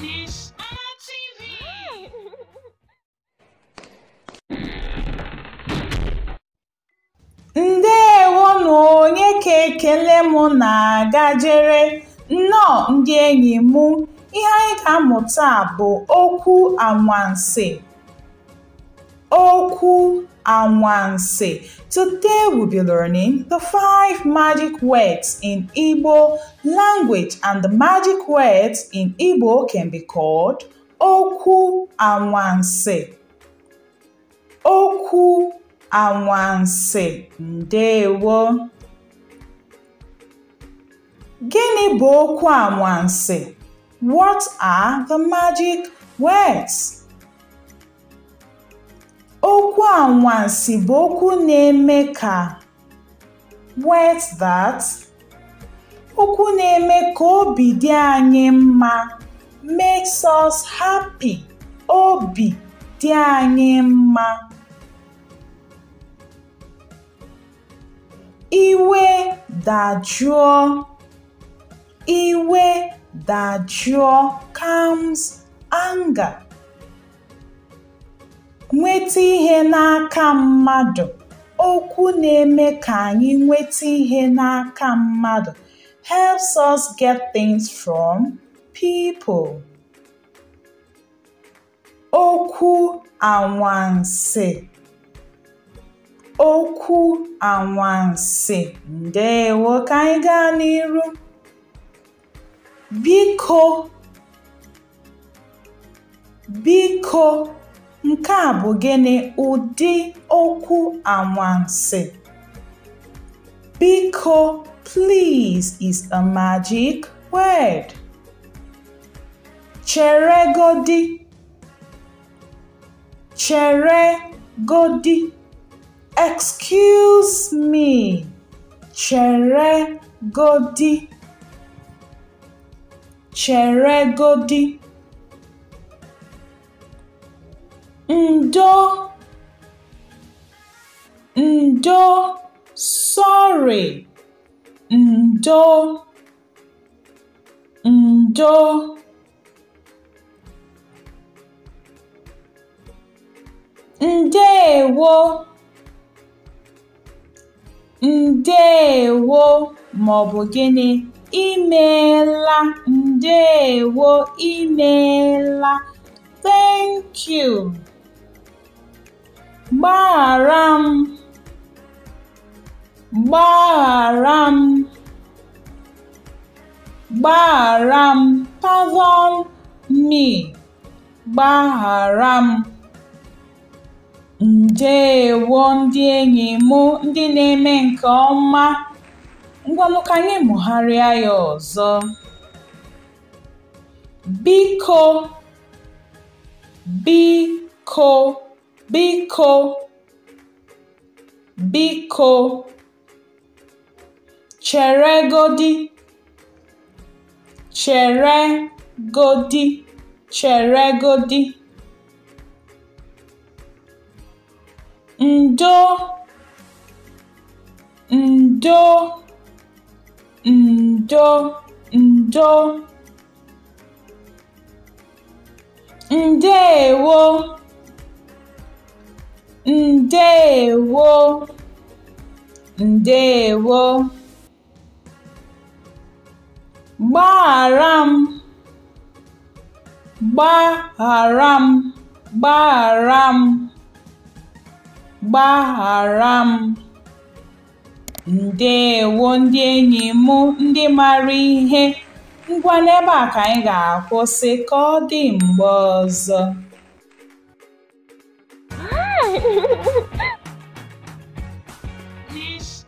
Niche TV. Ndeewo onye ka ekele m na-agajere. Nnọọ ndị enyi m, ihe anyị ga amụta bụ okwu anwansi. Oku Anwansi. Today we'll be learning the five magic words in Igbo language and the magic words in Igbo can be called Oku Anwansi. Oku Anwansi. Ndewo. Gịnị bo okwu anwansi? What are the magic words? Okwu anwansi bụ okwu na-eme ka "What's that?" okwu na-eme ka obi dị anyị mma (makes us happy, obi dị anyị mma), iwe dajụọ (iwe dajụọ, calms anger) nweta ihe n'aka mmadụ okwu na-eme ka anyị nweta ihe n'aka mmadụ helps us get things from people. okwu anwansị okwu anwansị ndeewo ka anyị gaa n'iru biko biko Nke a bụ gịnị? ụdị okwu anwansi? Biko, please is a magic word. Cheregodi. Cheregodi. Excuse me. Cheregodi. Cheregodi. Ndo, ndo, sorry ndo ndo ndewo ǹdeèwo maọbụ gịnị imeela ndewo imeela thank you Gbaghara m, gbaghara m, gbaghara m, pardon me, gbaghara m. Ndeewo ndị enyi ndị na-eme nke ọma. Ngwanụ ka anyị mụgharịa ya ọzọ. Biko, biko biko biko cheregodi cheregodi cheregodi ndo ndo ndo ndo ndeewo ndeewo ndeewo gbaghàra m gbaghàra m gbaghàra m ndị enyi m ndị mara ihe ngwa n'ebe a ka anyị ga-akwụsị ka ọ dị mgbe ọzọ Gente.